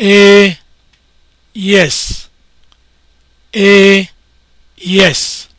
A yes A yes